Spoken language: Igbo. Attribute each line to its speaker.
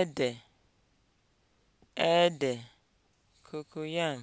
Speaker 1: ede ede cocoyam